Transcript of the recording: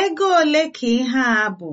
Ego ole ka ihe a bụ?